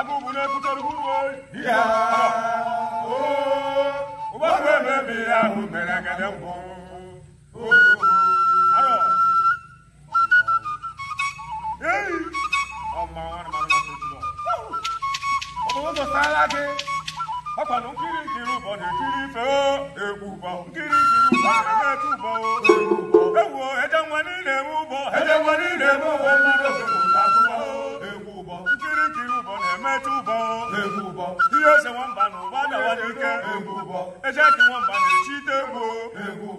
agụbụna ekwutarugbuwe ya ụgbọgbe mebe ya ahụ mere agada ngwụ ọmụụzọ sala gị ọkwana nkiri nkiri ụbọ na-ekiri ife egwu ụbọ nkiri nkiri ụbọ na-eme ụbọ egwu ejenwa niile eme ụbọ ejenwa niile eme ụbọ mmadụ na egwu ụbọ ihe eze nwamba na ụba dawa n'ike eje ka nwamba na echite ite egwu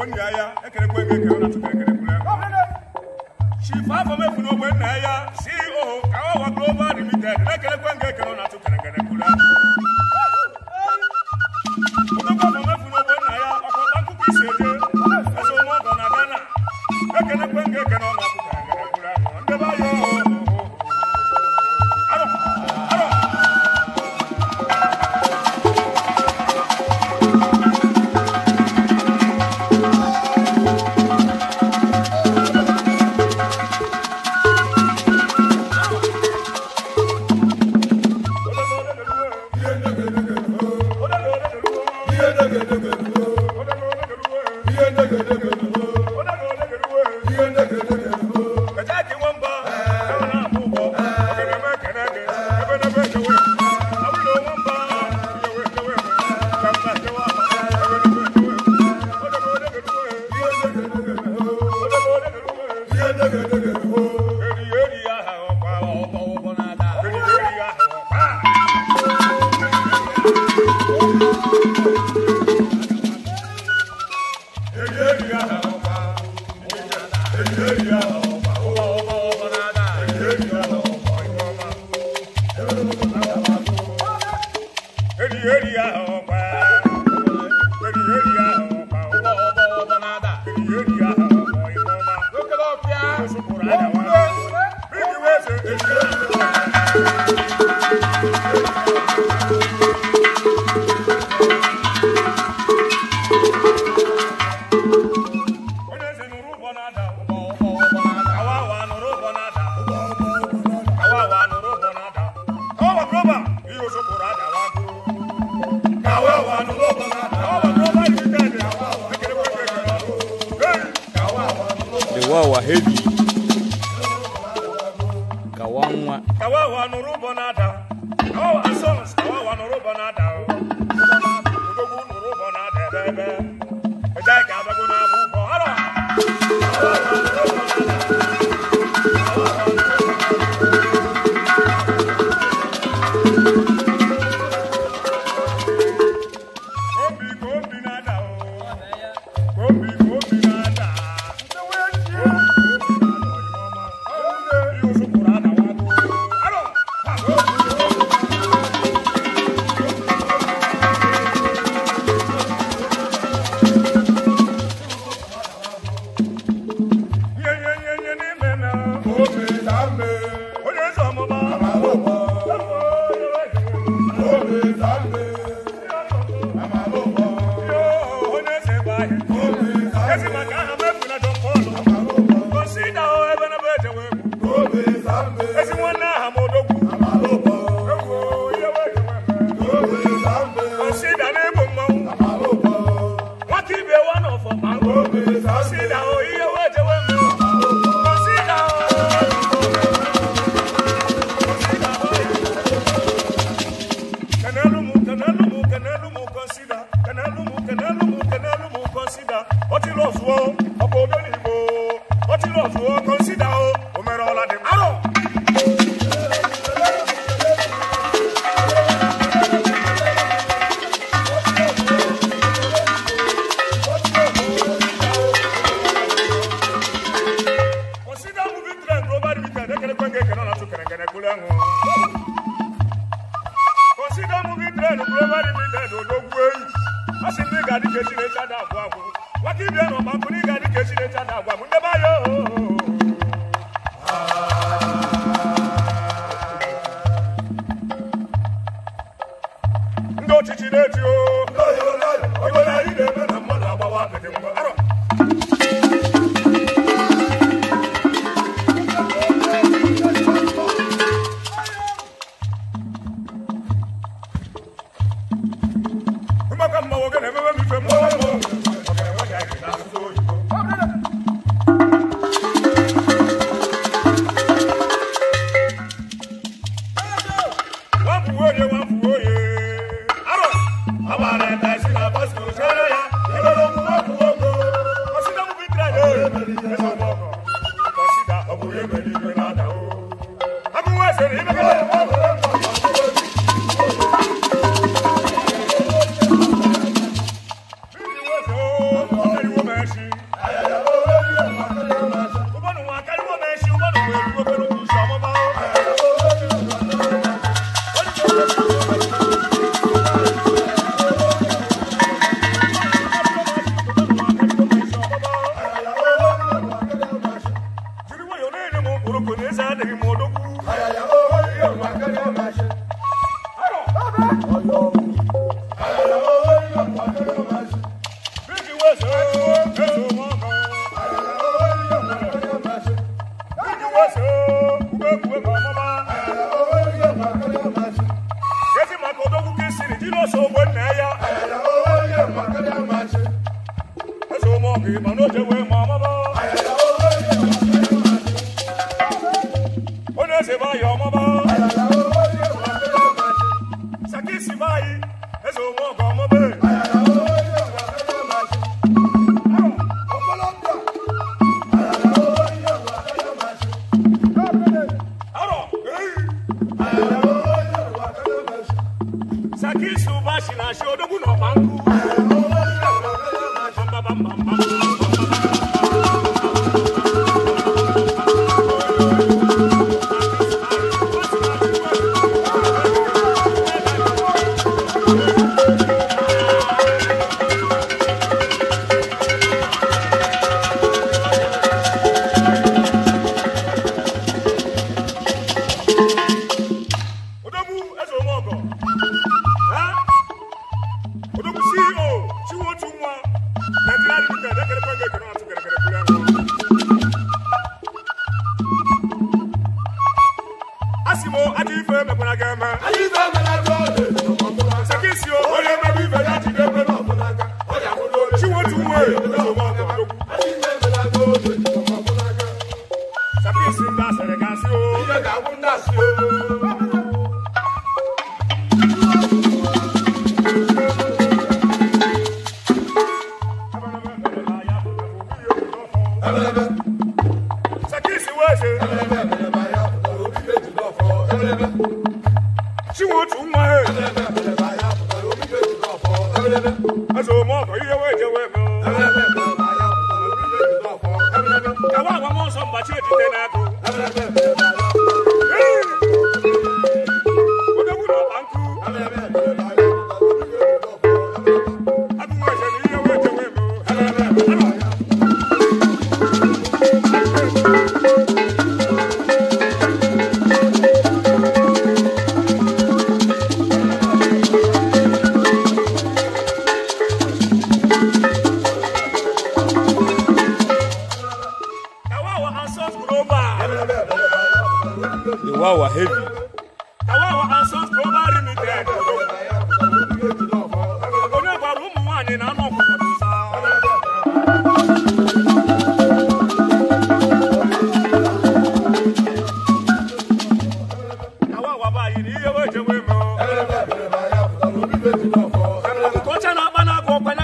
She far from ego ekere na tukerekerekwure chief oh, afọ mefu n'ogbe nna ya CEO Kawawa Global Limited na-ekerekwe ngo ekere na tukerekwure Hallelujah. kawawa heavy kawanwa kawawa nurubo nada kawawa songs kawawa no nurubo nada udogu oh, nurubo nada oh. bebe i adu odogwu enyi a sị ndị ga-adị ka i se vaya, mamá.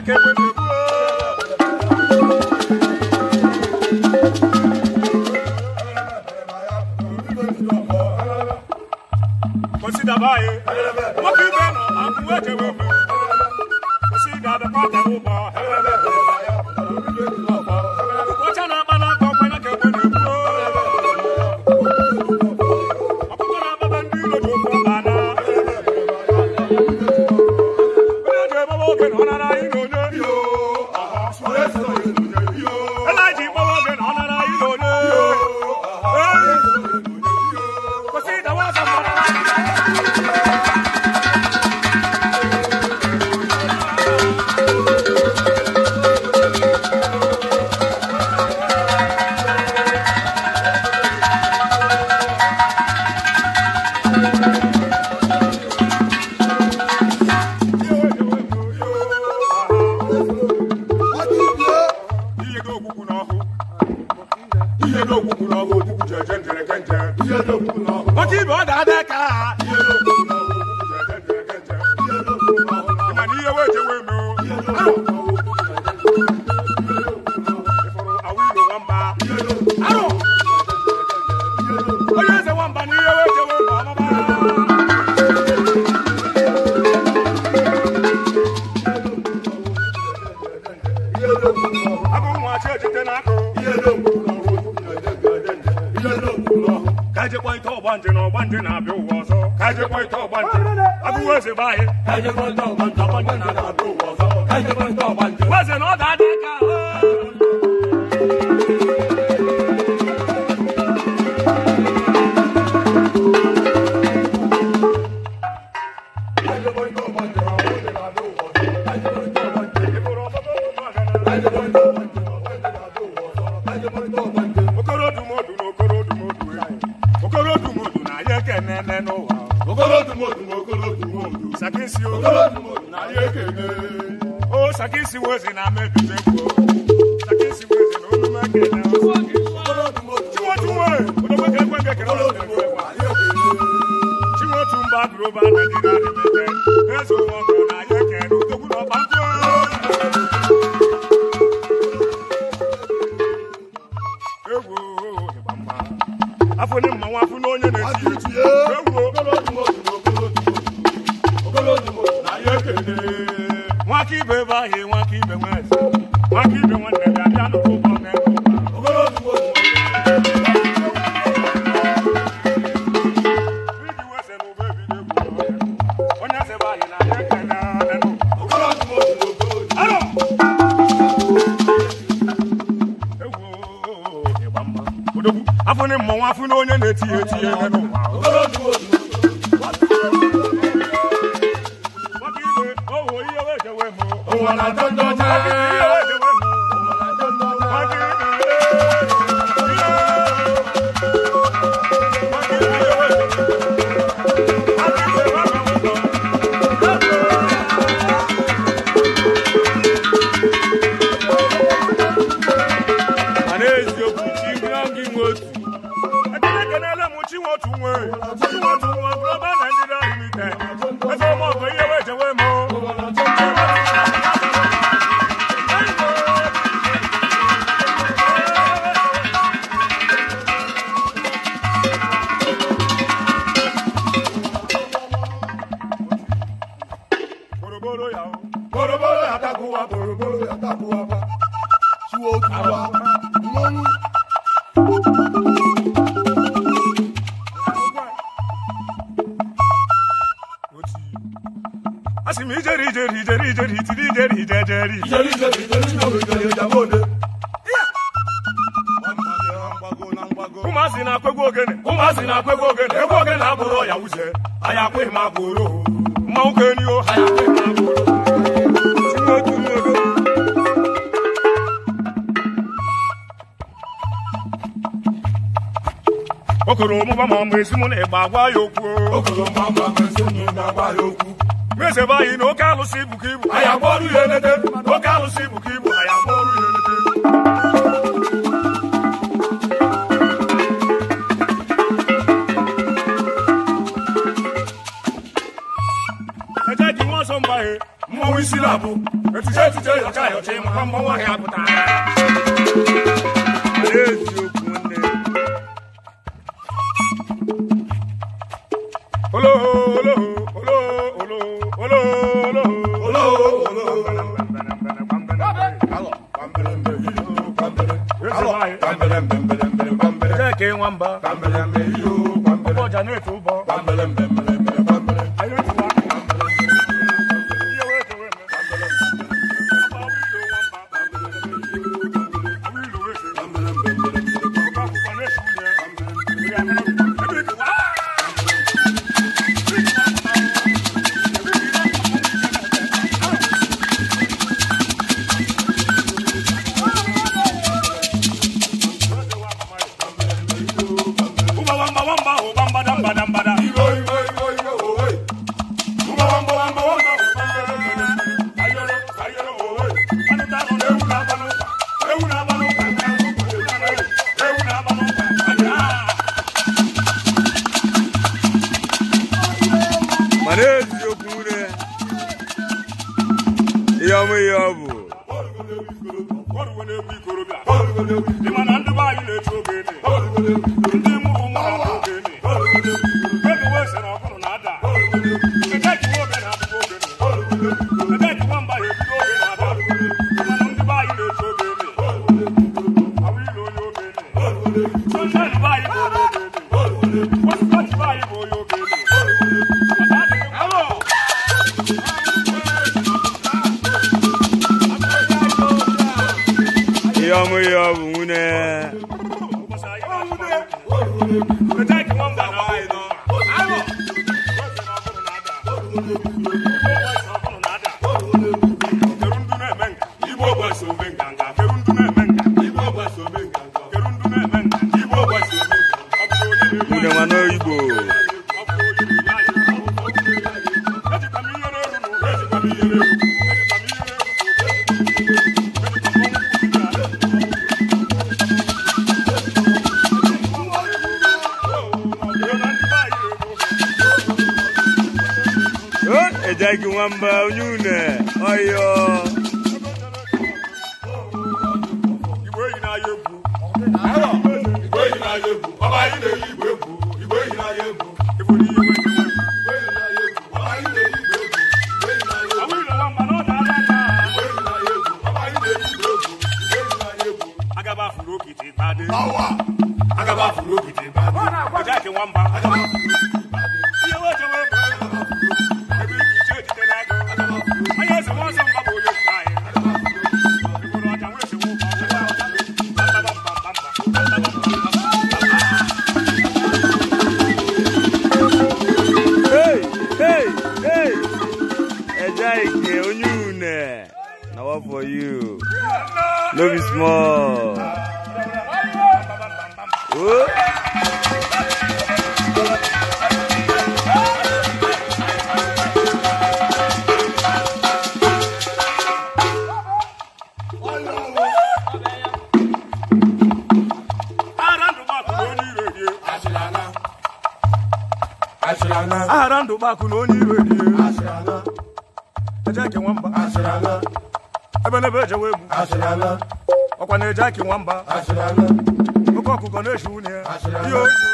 back you gonna know? si wo si na ame tutu ekpo saki si wo si na olu ma kele na tiwo tiwo olu ma kele kwe kele olu ma kele tiwo tu ba duro ba na di na di mi kɛ ezo wɔ kɔ na ye kɛ nu toku na ba ko. ewo ìgbà mma afọ ne mmanwụ afọ n'onye na-eti ewo. ibe báyìí wọn kì í bẹ wọn ẹsẹ wọn kì í bẹ wọn Oh, I don't know. okoro ọmụba ma mgbe esi mụ na-egba agwa ya okwu mese be anyị na oke alụsị bụ ka ibu anyị agba ya elete oke alụsị bụ ka ibu anyị agba ya elete nwa mmanwụ isi na-abụ etije etije yọcha yọcha ịmakwa mmanwụ ahịa pụtara Mwamba. Kambele ameyo, kambele. Ngoja niwe tu badam badam bamba unyune oyo igwe yi na-aya egwu igwe yi na-aya egwu ọba anyị na-eyi igwe egwu igwe yi na-aya egwu igwe yi na-aya egwu Agaba furu ogidi bade. Ọjà ìkẹwàá ń bá. Agaba furu ogidi bade. Iye owó ìjọba. No be small. Arandu baku n'onye iwe dị. Ẹ jẹ́ kí nwamba. ebelebe eji ewe egwu ọkwa na-eji aki nwamba oke ọkụkọ